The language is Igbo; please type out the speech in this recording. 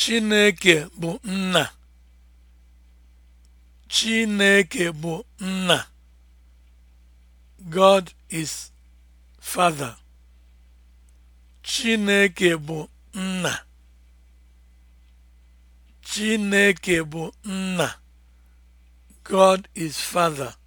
Chineke bụ nna. Chineke bụ nna. God is Father. bụ nna. God is Father.